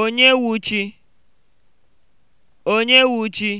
Onye wuchi? Onye wuchi?